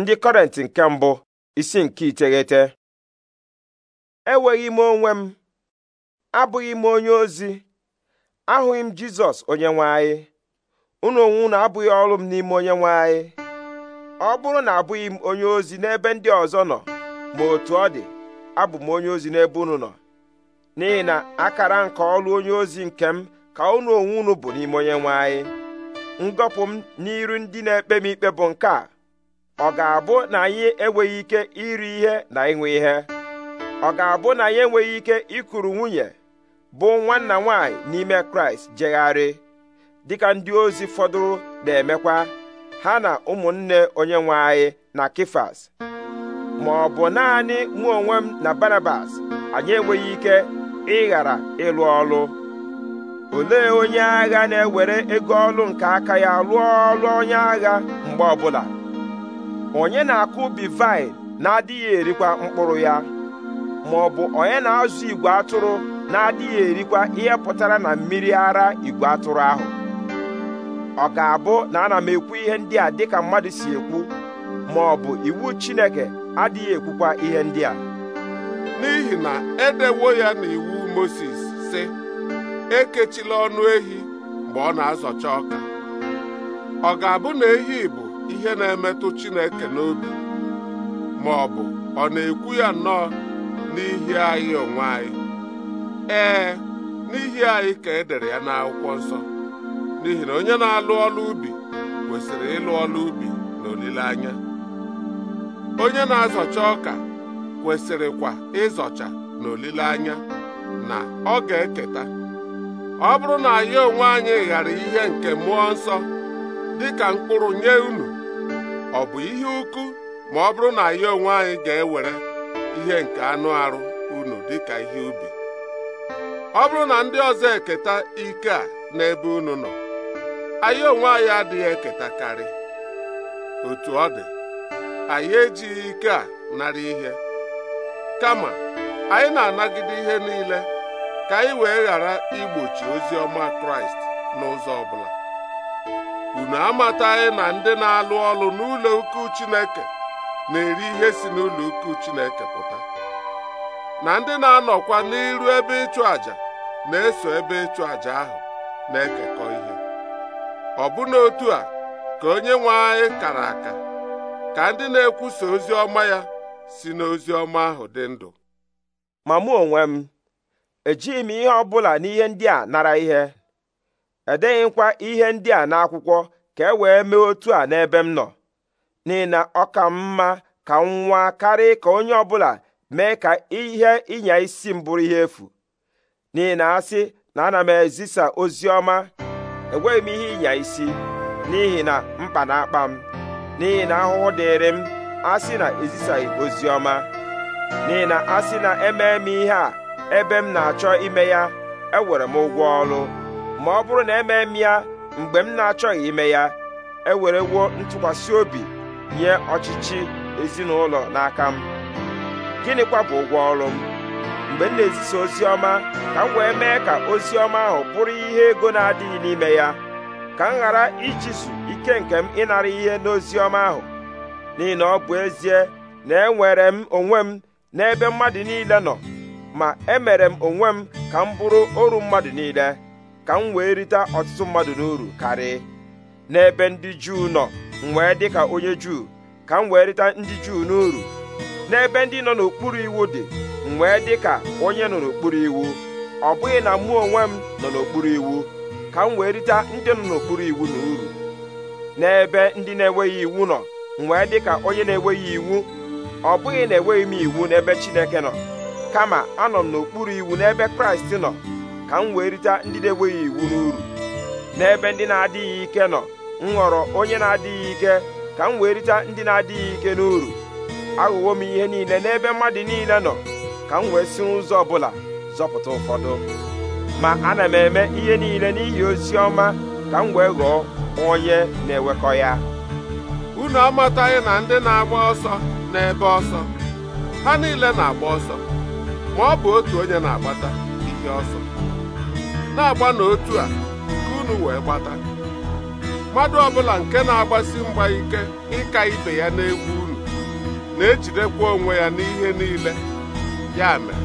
ndị kọrent nke mbụ isi nke iteghete enweghị m onwe m abụghị m onye ozi ahụghị m jizọs onye nwanyị anyị unu onwe unu abụghị ọrụ m n'ime onye nwanyị anyị ọ bụrụ na abụghị m onye ozi n'ebe ndị ọzọ nọ ma otu ọ dị abụ m onye ozi n'ebe unu nọ n'ihi na akara nke ọrụ onye ozi nke m ka unu onwe unu bụ n'ime onye nwe anyị ngọpụ m n'iru ndị na-ekpe m ikpe bụ nke a ọ ga-abụ na anyị enweghị ike iri ihe na ịṅụ ihe ọ ga-abụ na anyị enweghị ike ịkụrụ nwunye bụ nwanna nwanyị n'ime kraịst jegharị dịka ndị ozi fọdụrụ na-emekwa ha na ụmụnne onye nwe anyị na kifas ma ọ bụ naanị mụ onwe m na barabas anyị enweghị ike ịghara ịlụ ọlụ olee onye agha na-ewere ego ọlụ nke aka ya lụọ ọlụ onye agha mgbe ọbụla onye na-akụ ubi vaịn na-adịghị erikwa mkpụrụ ya ma ọ bụ onye na-azụ igwe atụrụ na-adịghị erikwa ihe pụtara na mmiri ara igwe atụrụ ahụ ọ ga-abụ na ana m ekwu ihe ndị a dịka mmadụ si ekwu ma ọ bụ iwu Chineke adịghị ekwukwa ihe ndị a n'ihi na edewo ya n'iwu Mozis si ekechila ọnụ ehi mgbe ọ na-azọcha ọka ọ ga-abụ na ehi bụ ihe na-emetụ Chineke n'obi ma ọ bụ ọ na-ekwu ya nnọọ n'ihi anyị onwe anyị ee n'ihi anyị ka e dere ya n'akwụkwọ nsọ n'ihi na onye na-alụ ọlụ ubi kwesịrị ịlụ ọlụ ubi na olileanya onye na-azọcha ọka kwesịrịkwa ịzọcha na olileanya na ọ ga-eketa ọ bụrụ na anyị onwe anyị ghara ihe nke mmụọ nsọ dịka mkpụrụ nye unu ọ bụ ihe ukwu ma ọ bụrụ na anyị onwe anyị ga-ewere ihe nke anụ arụ unu dịka ihe ubi ọ bụrụ na ndị ọzọ eketa ike a n'ebe unu nọ anyị onwe anyị adịghị eketakarị otu ọ dị anyị ejighị ike a narị ihe kama anyị na-anagide ihe niile ka anyị wee ghara igbochi ozi ọma Kraịst n'ụzọ ọ bụla unu amataghị na ndị na-alụ ọlụ n'ụlọ ukwu Chineke na-eri ihe si n'ụlọ ukwu Chineke pụta na ndị na-anọkwa n'iru ebe ịchụ àjà na-eso ebe ịchụ àjà ahụ na-ekekọ ihe ọbụna otu a ka onye nwe anyị kara aka ka ndị na-ekwusa ozi ọma ya si n'ozi ọma ahụ dị ndụ ma mụ onwe m ejighị m ihe ọ bụla n'ihe ndị a nara ihe edeghịkwa ihe ndị a n'akwụkwọ ka e wee mee otu a n'ebe m nọ n'ihi na ọ ka mma ka m nwa karị ka onye ọbụla mee ka ihe ịnya isi m bụrụ ihe efu n'ihi na asị na ana m ezisa ozi ọma enweghị m ihe ịnya isi n'ihi na mkpa na-akpa m n'ihi na ahụhụ dịịrị m asị na ezisaghị ozi ọma n'ihi na asị na emee m ihe a ebe m na-achọ ime ya ewere m ụgwọ ọrụ ma ọ bụrụ na emee m ya mgbe m na-achọghị ime ya ewerewo ntụkwasị obi nye ọchịchị ezinụlọ n'aka m gịnịkwa bụ ụgwọ ọrụ m mgbe m na-ezisa ozi ọma ka m wee mee ka ozi ọma ahụ bụrụ ihe ego na-adịghị n'ime ya ka m ghara ijisu ike nke m ịnara ihe n'ozi ọma ahụ n'ihi na ọ bụ ezie na enwere m onwe m n'ebe mmadụ niile nọ ma emere m onwe m ka m bụrụ oru mmadụ niile ka m wee rite ọtụtụ mmadụ n'uru karị n'ebe ndị juu nọ m wee dị ka onye juu ka m wee rite ndị juu n'uru n'ebe ndị nọ n'okpuru iwu dị m wee dị ka onye nọ n'okpuru iwu ọ bụghị na mụ onwe m nọ n'okpuru iwu ka m wee rite ndị nọ n'okpuru iwu na uru n'ebe ndị na-enweghị iwu nọ m wee dị ka onye na-enweghị iwu ọ bụghị na enweghị m iwu n'ebe Chineke nọ kama anọ m n'okpuru iwu n'ebe Kraịst nọ ka m wee rite ndị na-enweghị iwu n'uru n'ebe ndị na-adịghị ike nọ m ghọrọ onye na-adịghị ike ka m wee rite ndị na-adịghị ike n'uru aghụghọ m ihe niile n'ebe mmadụ niile nọ ka m wee si ụzọ ọbụla zọpụta ụfọdụ ma ana m eme ihe niile n'ihi ozi ọma ka m wee ghọọ onye na-ewekọ ya unu amataghị na ndị na-agba ọsọ n'ebe ọsọ ha niile na-agba ọsọ ma ọ bụ otu onye na-agbata ihe ọsọ na-agba n'otu a ka unu wee gbata mmadụ ọbụla nke na-agbasi mgba ike ịka ibe ya n'egwu unu na-ejidekwa onwe ya n'ihe niile ya mere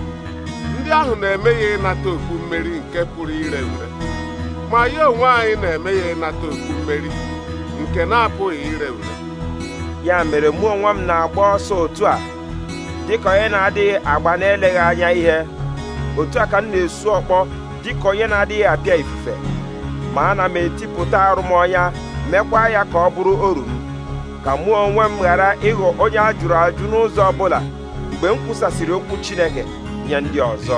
ndị ahụ na-eme ya ịnata okpu mmeri nke pụrụ ire ure ma ya onwe anyị na-eme ya ịnata okpu mmeri nke na-apụghị ire ure ya mere mụ onwe m na-agba ọsọ otu a dịka onye na-adịghị agba na-eleghị anya ihe otu a ka m na-esu ọkpọ dịka onye na-adịghị apịa ifufe ma ana m etipụta arụmọnya mekwa ya ka ọ bụrụ oru ka mụ onwe m ghara ịghọ onye a jụrụ ajụ n'ụzọ ọ bụla mgbe m kwụsasịrị okwu Chineke nye ndị ọzọ